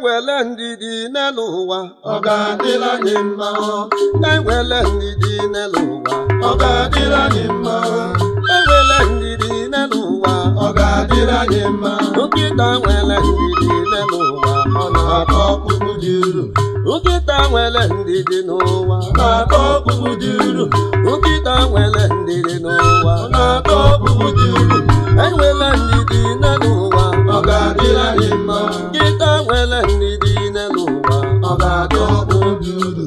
ewele ndidi n'elu ụwa ọ ga-adịla mma ndidi n'elu ụwa ọ ga-adịla mma ndidi n'elu ụwa ọ ga-adịla mma nwere ndidi n'elu ụwa ọ na ọkpụkpụ dị uru nwere ndidi n'ụwa na nwere ndidi n'ụwa na e ndidi Ndị ndidi n'ụwa ọ ga-atọ obi uru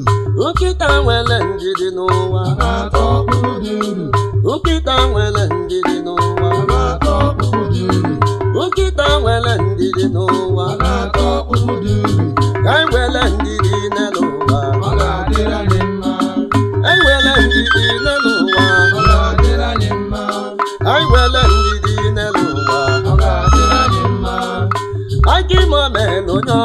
nkịta nwere dị n'ụwa ọma aka ibe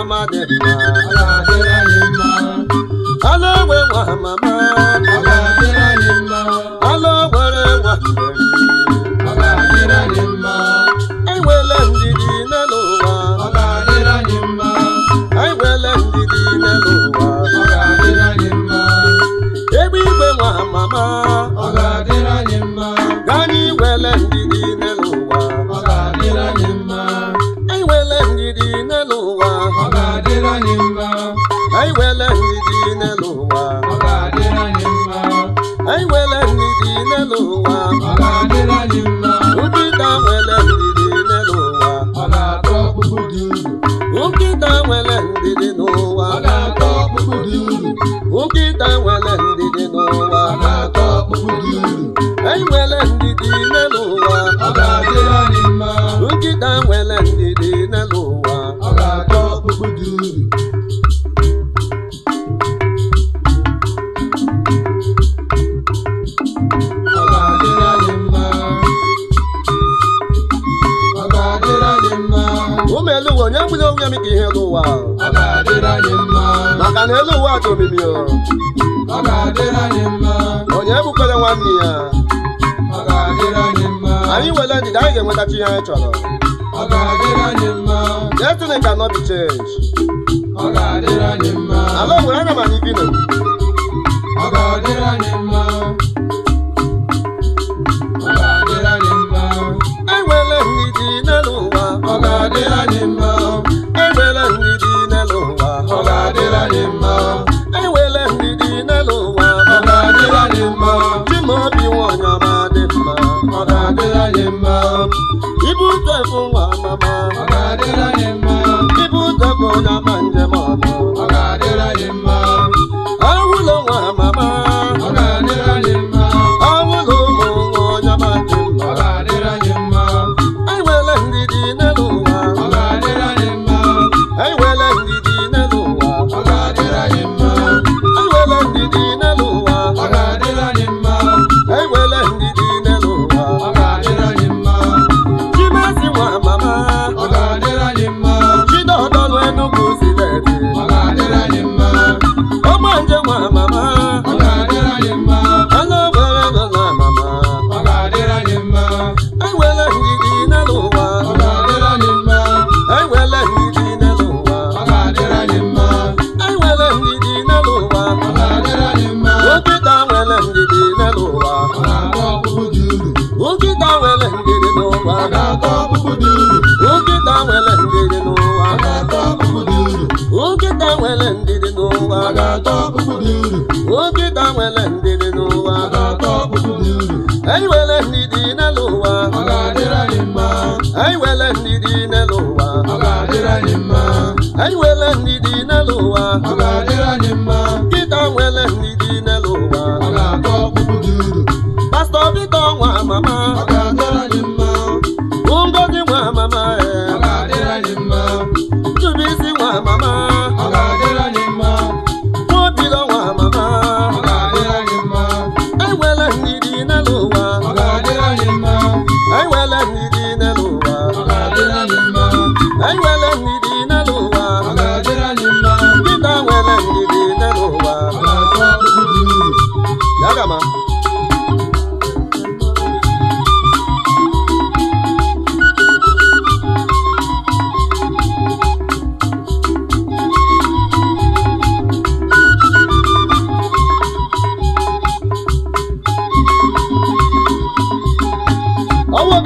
ọma dị mma ala ogbe nwa ala nwa ndidi n'elu ndidi n'elu egbe igwe nwa mama dọkịta nwe ụmụ elu ụwa onye nwere onwe m ka ihe elu ụwa ọ ga-adịrị anyị mma maka na elu ụwa dị omimi ọ ga-adịrị onye ebukwere nwanne ya anyị nwere ndidi anyị ga-enwetachi ihe anyị chọrọ ọ ga-adịrị cannot be changed ọ ga-adịrị anyị mma ala nwere aga m anyị bi nkịta nwere ndidi n'ụwa nkịta nwere ndidi n'ụwa ndidi n'ụwa anyị nwere ndidi n'elu ụwa anyị nwere ndidi n'elu ụwa anyị nwere ndidi n'elu ụwa nkịta nwere ndidi n'elu ụwa pastọ Victor nwa mama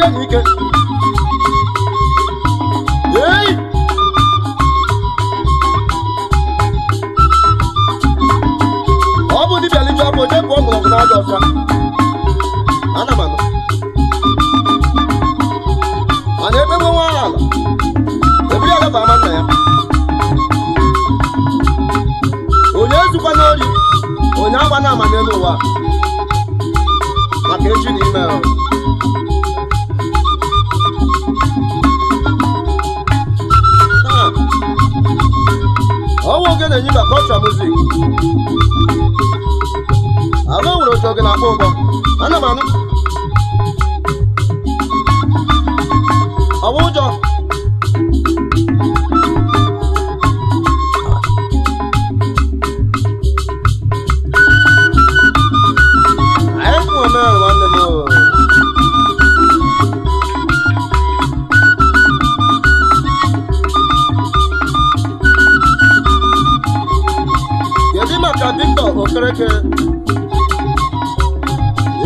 ebe n'ike ei ọ bụ dibịa liju abụ onye bụ ọgụlọgụ n'ọdụ ọfịa ana m anụ mana ebe nwe ya onye ezukwa n'ori onye agba na ama n'elu ụwa maka echi na ime Oje na-enye mba kọlchọ muzik agụ nwere otu oge na-akpọ ụgbọ ana m anụ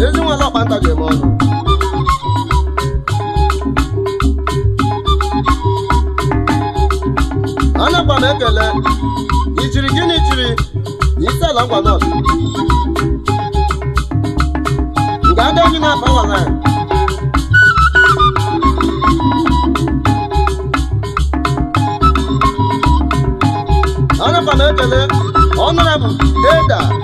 ezi nwere ọkpanta ga eme ọnụ anakwa m ekele ijiri gịnị jiri isela ngwa nọt nga adịghị na-afa nwara anakwa m ekele ọnụra m eda